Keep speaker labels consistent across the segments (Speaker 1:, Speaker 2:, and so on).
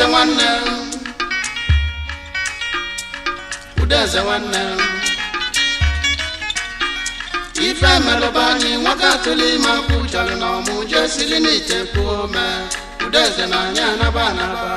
Speaker 1: udeze nwanne udeze nwanne ife melụba anyị nwoke atụla ime akwụ chọrọ na ọmụ je siri n'ite kwuo ome udeze na anyị anaba anaba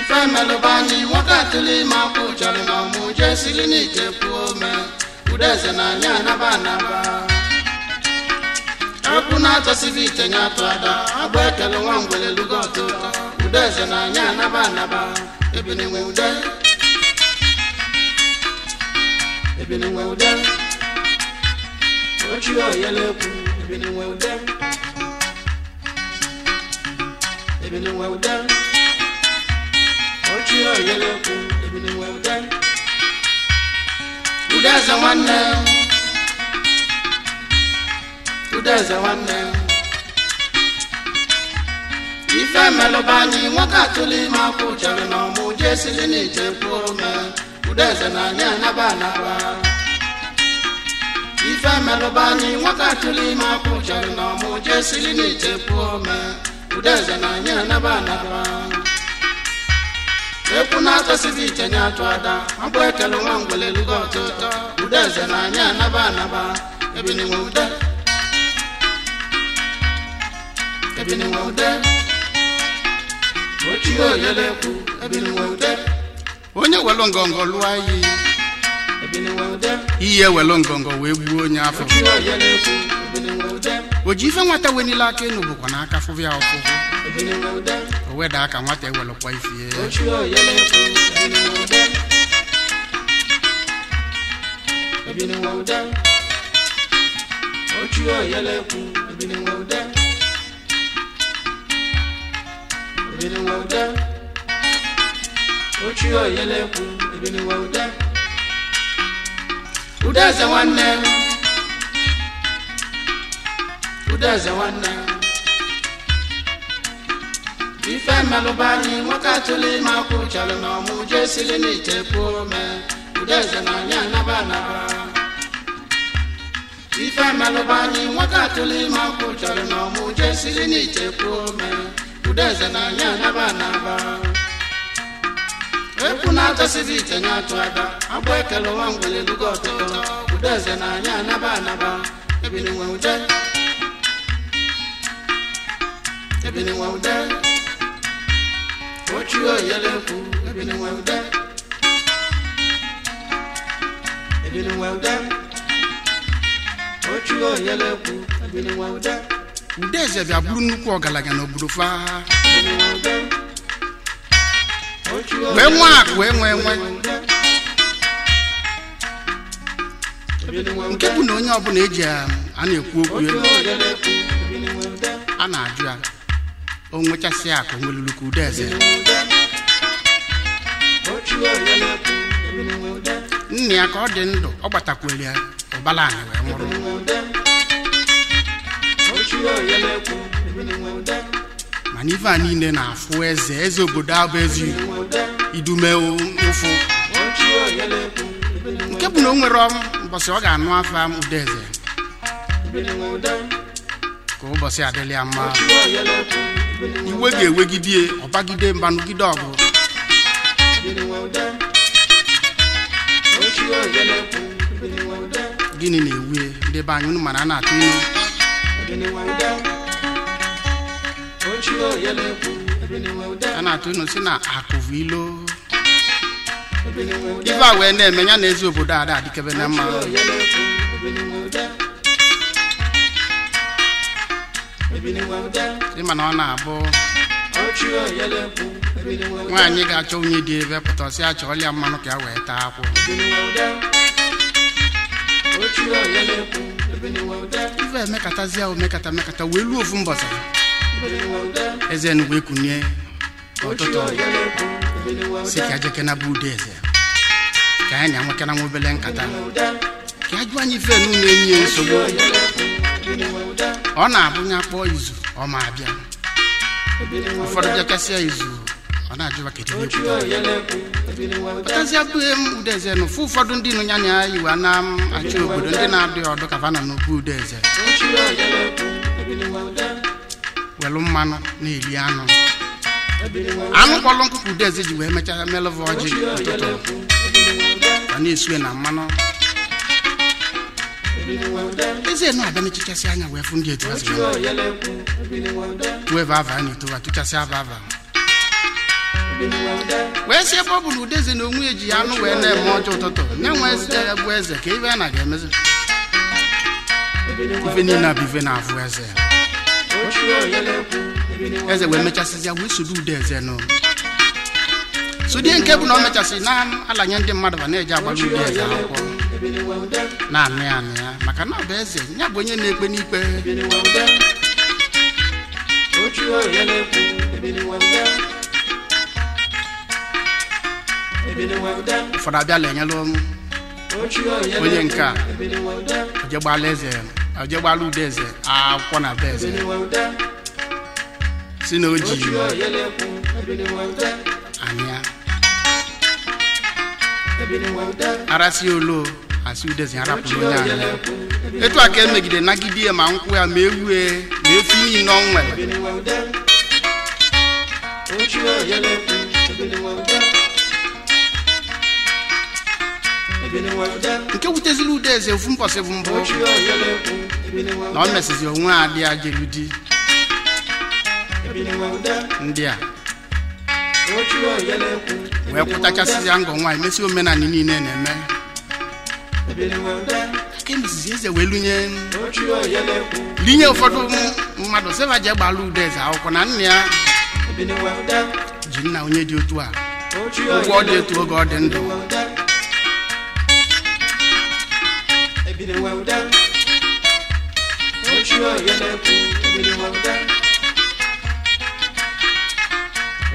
Speaker 1: ife melụba anyị nwoke atụla ime akwụ chọrọ na ọmụ je siri n'ite kwuo ome udeze na anyị anaba anaba okwu na-atọsibi ite nye atụ ada agba ekele nwa ngwele lugo ọtọ ụtọ ude eze na anya anaba anaba ebinenwe ude ebinenwe ude ochie oyele ekwu ebinenwe ude ebinenwe ude ochie oyele ekwu ebinenwe ude ude eze nwanne udeze nwanne ife melụba anyị nwoke atụla ime akwụ chere na ọmụ jee sili n'ije kwuo ome udeze na anyị anaba anaba ife melụba anyị nwoke atụla ime akwụ chere na ọmụ jee sili n'ije kwuo ome udeze na anyị anaba anaba ekwu na-atọsighị iche nye atụ ada mkpụ ekele nwa ngwele lugo ọtụtọ udeze na anyị anaba anaba ebinigwe ude onye welụ ngọngọ lụọ iyi ebini nwude ngọngọ wee gbuo onye afọ o ji ife nwata wenile aka enu bụkwa n'aka fụvụ ya o weda aka nwata ewelụkwa ifie ochie ebiniwe ude ude udeze udeze ife mmelụba nwoke atụla ime akwụ chọrọ na ọmụ jee siri n'ite pụọ ome udeze na anyị ife nwoke ime akwụ chọrọ na ọmụ siri n'ite ome udeze na anya n'aba. anaba epu na-atọsịrị ite nye atụ aba agbụ ekele ụwa mgbele lugo ọtụtụ udeze na anya n'aba. anaba ebili nwe ude ebili nwe ude ochi oyele ekwu ebili nwe ude ebili nwe ude ochi oyele ekwu ebili nwe ude eze bịa bụrụ nnukwu ọgaranya n'obodo faa wee nwe akụ enwe enwe nke bụ na onye ọbụla eji um, a na-ekwu okwu elu a na-ajụ ya o nwechasị akụ nweluluka udeze nna ya ka ọ dị ndụ ọ gbatakwere ya ụbala anyị wee nwụrụ mana ife niile na-afụ eze eze obodo abụ ezi idume ụfụ nke bụ na o nwere mbọsị ọ ga-anụ afa ụda eze ka ụbọchị adịla mma iwe ga-ewegide ọbagide mbanụgide ọgụ gịnị na-ewu ndebe anyị mana a na-atụ ilu a na-atụ unu si na akụvu ilo ife a wee na-eme ya na ezi obodo ada adịkebe na mma dị mana ọ na-abụ nwaanyị ga-achọ onye dị ebe pụta pụtasị achọ ọlịa mmanụ ka ya wee taa akwụ ife emekatazi ahụ mekata mekata wee ruo ofu mbọsa eze enugwu ekunye ọtụtụ si ka jekena bụ ude eze ka anyị na-enwekana nwa obele nkata ka ajụ anyị ife n'ụlọ enyi ya nsogbu ọ na-abụnye akpọ izu ọ ma abịa ụfọdụ bịakasịa izu ọ na-ajụwa kechipụtazie bụghị m udeze na ụfụ ụfọdụ ndị nụnya na ya na achị obodo ndị na adị ọdụ ka vana n'okwu udeze welu mmanụ na eri anụ anụ kpọlụ nkụkụ udeze ji wee mechaa melụva ọjị ụtụtụ ọ na-esue na mmanụ eze na-abịa na-echichasị anya wee fụ ndị etu wee vava na etowa tụchasị ava ava wee ọ bọbụlụ udeze na onwe eji ya anụ wee na-eme ọjọ ụtụtụ na eze e, bụ eze ka ibe a na ga-emezi ife niile abụ ife na-afụ eze eze wee mechasịzịa wee soro ude eze nụ sudie nke bụ na o mechasịrị na-alanye ndị mmadụ ba na-eji agbara ude eze akwụkwọ na amị anị ya maka na ọ bụ eze ya bụ onye na-ekpe n'ikpe ụfọdụ abịa lenyelụ onye nke a ojegbala eze ojegbala ude eze akwụkwọ na be eze si na o ji anya arasị olo asị udeze arapụrụ onye anya etu a ka emegide nagide ma nkwụ ya ma ewue ma efi niile ọ nwere nke wute ude eze ofu mbọsị bụ mbụ na o mesizi onwe adị ajelu di ndị a wee kwụtachasịzịa ngọ nwaanyị mesi omenanị niile na-eme ka eze wee lunye linye ụfọdụ mmadụ seva ji gbala ude eze akwụkwọ na nna ya ji nna onye dị otu a ụgwọ dị otu oge ọ dị ndụ ebiri wawuda ochie oyelekwu ebiri wawuda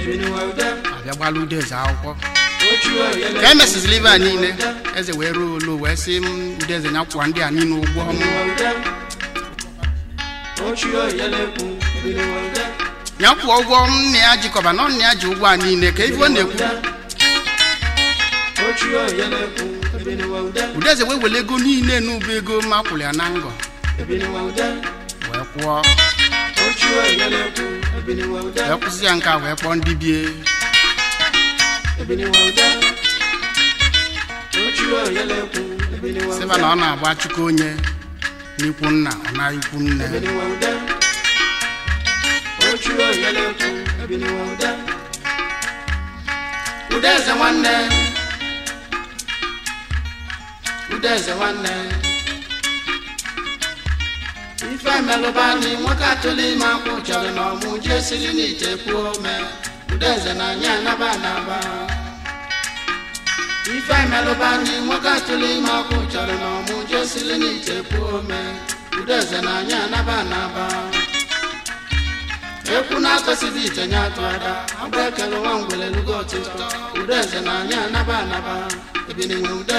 Speaker 1: ebiri wawuda abịagbalụ udeze akwụkwọ ka emesizi liva niile eze wee ruo olu wee sị m Eze na kwụwa ndị a niile ụgwọ m ya kwụọ ụgwọ m na ya jikọba na ọ na ya ji ụgwọ a niile ka ife ọ na-ekwu udeze wee ego niile n'ụba ego ma kwụrụ ya na ngọ wee kwụọ wee kwụsị ya nke a wee kpọọ ndị bie sịba na ọ na-agba chukwu onye n'ikwu nna ọ na ikwu nne udeze nwanne eze nwanne ife melụbani nwoke atụla ime akwụ chọrọ na ọmụ jee siri n'ite kwuo ome udeze na anya anaba anaba ife melụbani nwoke atụla ime akwụ chọrọ na ọmụ jee siri n'ite kwuo ome udeze na anya anaba anaba ekwu na-atọsịdị ite nye atụ ada agba ekele nwa ngwere lugo ọtụtụ udeze na anya anaba anaba ebinenwe ude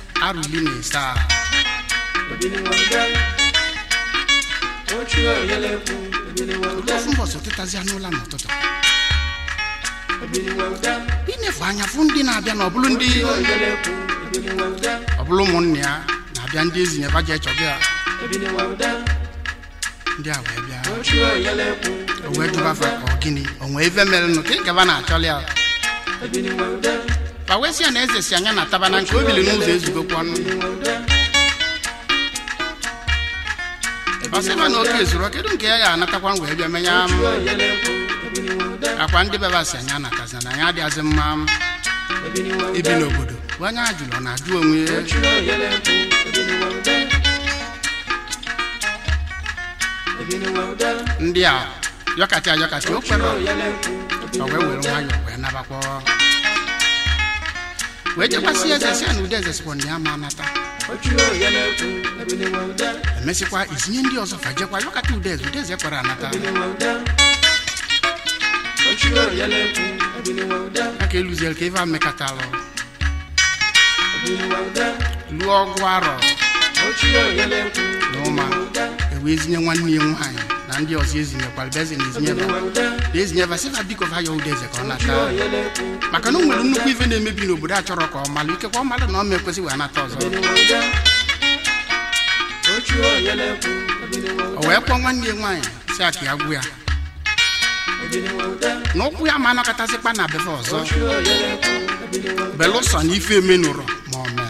Speaker 1: arụli na ịsa ofu mbọsị tetazie n'ụla n'ụtụtụ inefu anya fụ ndị na-abịa na ọbụlụ ndị ọbụlụ ụmụnne ya na-abịa ndị ezi nyeba ji echọgị a ndị a wee bịa o wee jụba fa ọ gịnị o nwee ife mere nụ ka ị gaba na-achọli ya ka wee sị na eze si anya na na nke o n'ụzọ ezugokwa ọnụ
Speaker 2: na oke zụrụ
Speaker 1: kedu nke ya ga-anatakwa wee bịa menye akwa ndị bebasi anyị anatazi na anyị adịghịzi mma ibi n'obodo bụ anya ajụrụ na-ajụ onwe ndị a yọkata yọkata o kwere wee were ya wee nabakwa wee chekwasị eze si na ụdị eze sikwa na ya ma anata emesịkwa izinye ndị ọzọ fajekwa yọkata ụdị udeze ụdị kwara anata aka eluziel ka eva mekatalụ lụọ ọgụ arọ na ụma ewee zinye nwanne ya nwaanyị na ndị ọzọ ezinyekwara bịa ezinyezinye ezinye vasịfa biko va ya ụda eze ka ọ nata maka na o nwere nnukwu ife na-emebi n'obodo a chọrọ ka ọ malụ ikekwa ọ malụ na ọ ma ekwesị wee nata ọzọ o wee kpọọ nwanne ya nwaanyị si aka ya gwụ ya na ụkwụ ya ma anakatasịkpa na befe ọzọ belụsọ na ife emenụrọ ma ọ mee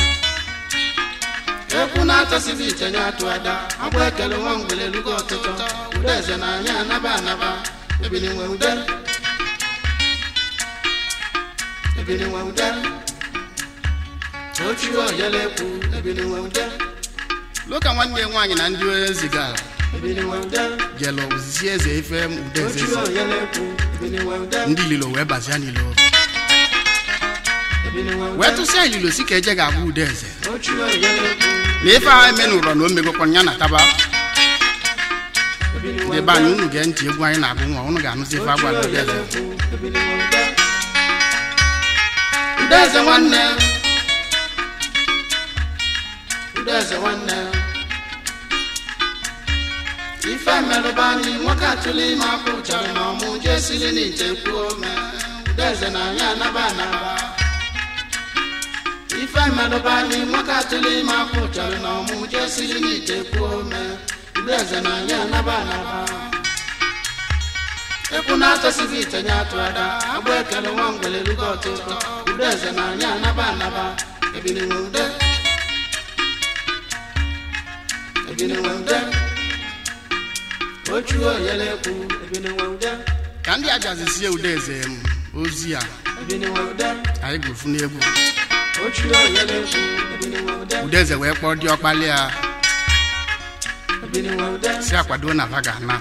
Speaker 1: ekwu na-achọsịghị iche nye atụ ada agba ekele nwa mgbere elugo ọtụtụ ude eze na anyị anaba anaba ebili nwe ude ebili nwe ude ochi oyele ekwu ebili nwe ude loka nwanne nwaanyị na ndị onye zigara jelu zi eze ife udeze ndị lilo wee bazia n'ilo wee tụsịa ililo si ka eje ga-abụ udeze na ife anyị me n'ụlọ na o megokwa ya na taba ndị anyị unu gee ntị egwu anyị na-agụ nwa unu ga-anụzi ife agwa ndị eze ndị eze nwanne ndị eze nwanne ife merụba anyị nwoke atụla ime akwụ chọrọ na ọmụ jesiri n'ite kwuo mee ndị eze na anyị anaba anaba ife melụbali nwaka atụli ma afọ chọrọ na ọmụ jee siri n'ite kwuo ome igbe eze na ya naba anaba ekwu na-atọsighị itenye atụ ada agba ekele nwa ngwele rugo ọtụtụ ndị eze na ya anaba anaba ebiniwude ebiniwude ochu oyele ekwu ebiniwude ka ndị ajazisie ude eze ozi a anyị ga gwụfu n'egwu udeze wee kpọọ ndị ọkpali ya si akwado na va ga na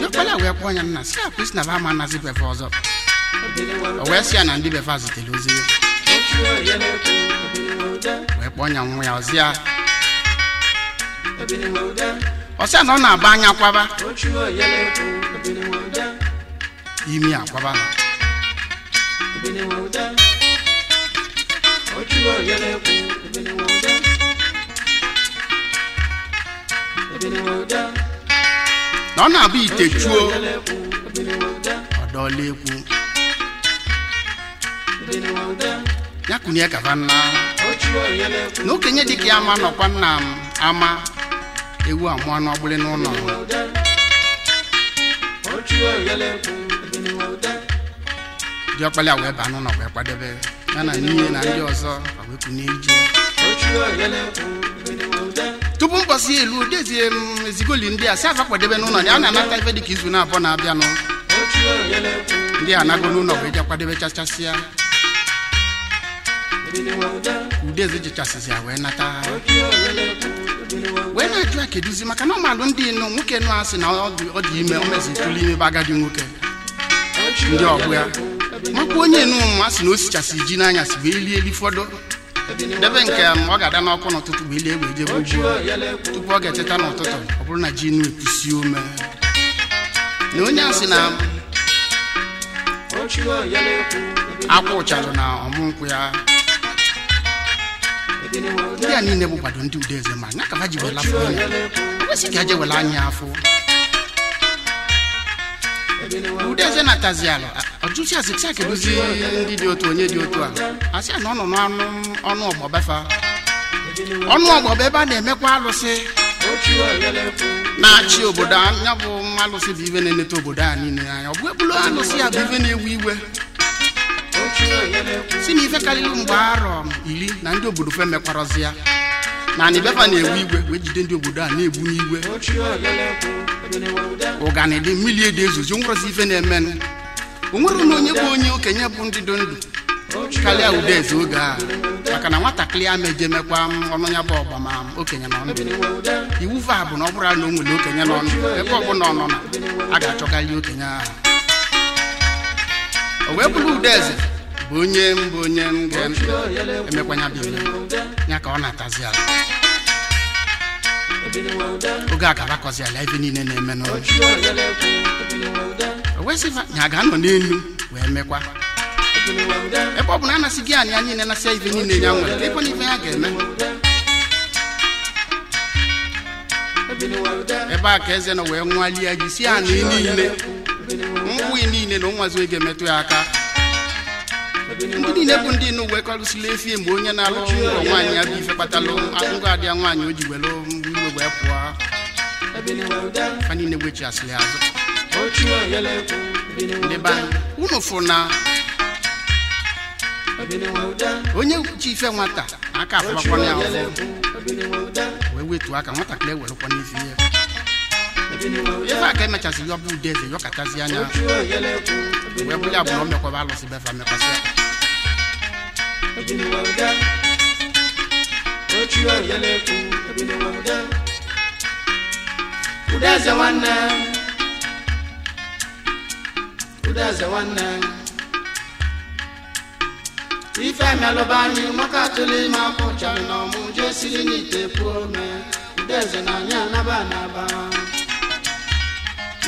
Speaker 1: ndị ọkpali a wee kpọọ ya nna si akwa isi na va ama anazi befe ọzọ o wee si ya na ndị befe a ozi wee kpọọ ya nwa ya ozi ya ọsịa na ọ na agba anya kwaba imi akwaba na naọ na-abụ ite tuo ọdolegwu ya kwunye kabana n'okenye dị ka ya ma nọkwa nna m ama ewu amụọ n'ọgbụrụ n'ụlọụ ndị ọkpali a wee ba n'ụlọ wee kwadebe ya na nne na ndị ọzọ wee ije tupu mkpọsi elu dezie m ezigoli ndị a si afa kwadebe n'ụlọ ya na-anata ife dịka izu na-abụọ na-abịanụ ndị a anago n'ụlọ wee jee kwadebe chachasịa udeze jichasịzi ya wee nata wee na-ajụ a keduzi maka na ọmalụ ndị nụ nwoke nụ asị na ọ dị ime o mezi tụlụ ime bụ agadi nwoke ndị ọgụ ya nkwa onye numa asị na o sichasị ji n'anyasị bụ ili eli fọdụ debe nke ọ ga-ada n'ọkụ n'ụtụtụ bụ ile egbe ejebe ji tupu ọ ga echeta n'ụtụtụ ọ bụrụ na ji nu epusi ume na onye asị na akwa ụcharụ na ọmụ ya ndị a niile bụkwado ndị ude eze ma nya kaba ji wela afọ ya kwesị ka eje anya afọ ude eze natazi ala jụsi asị sị akedozi ndị dị otu onye dị otu a asị na ọ nọ n'ọnụ ọnụ ọgbọbefa ọnụ ọgbọba ebe a na-emekwa alụsị na-achị obodo anya bụ alụsị bụ iwe na-eneta obodo a niile anya ọ bụ ebulu alụsị ya bụ iwe na-ewu iwe si na ife karịrị mgbe arọ iri na ndị obodo fe mekwarọzi ya na anị befa na-ewu igwe wee jide ndị obodo a na-egbu n'igwe ụganị dị mmiri dị ezozi onwerozi ife na-emenụ onwere na onye bụ onye okenye bụ ndị dị ndụ karịa eze oge a maka na nwatakịrị a meje ọnụ ya bụ ọgbama okenye nọ ndụ iwu va bụ na ọ bụrụ na o nwere okenye nọ ndụ ebe ọbụla ọ nọ na a ga-achọkarị okenye ahụ o wee bụrụ udeze bụ onye mbụ onye m ga-emekwanya bụ ya ka ọ na-atazi ala oge a ga-arakọzi ala ebe niile na-eme n'ụlọ wesịa ya ga-anọ n'elu wee mekwa ebe ọ bụ na anasị gị anyị ya niile nasịa ife niile ya nwere ịkwa na ife ya ga-eme ebe a ka eze nọ wee nwalie gị si anị niile mgbụghị niile na ụnwazi oge metụ ya aka ndị niile bụ ndị nụ wee efi efie mgbe onye na-alụchi ụlọ nwaanyị ya bụ ife kpatalụ akụkọ adịa nwaanyị o ji mgbe iwe wee pụọ ha niile wechi asịrị azụ unu fo na onye ji ife nwata aka afụbakwana ya wee wetu aka nwatakịrị ewerekwa n'izi ihe ife aka emechasị ya e ọbụ ude eze yọkatazi anya wee bụrụ ya bụ na ọ mekwaba alụsị befa mekwasị aka ude nwanne m ude eze nwanne ife emelụba anyị maka atụla ime akwụchara na ọmụ jee siri n'ite eze na anyị anaba anaba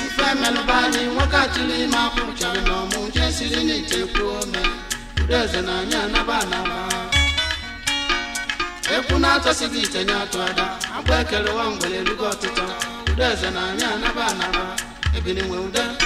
Speaker 1: ife anyị nwoke atụlụ ime akwụchara na ọmụ jee siri n'ite eze na anyị anaba anaba ite atụ ada akpa ekele na anyị anaba anaba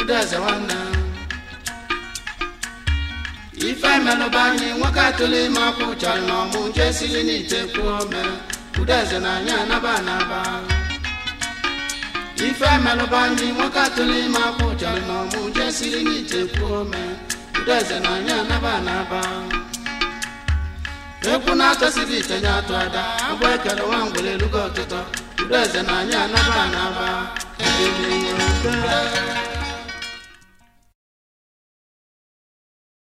Speaker 1: Udeze nwanne ife melụba anyị nwoke atụle ime akwụ chọrọ na ọmụ nke siri n'ite kwuo na anyị anaba anaba ife nwoke siri na na ite atụ ada agwa ekere nwa ngwere elugo ọtụtụ eze na anyị anaba anaba